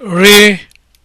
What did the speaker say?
re